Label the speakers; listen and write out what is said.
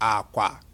Speaker 1: akwa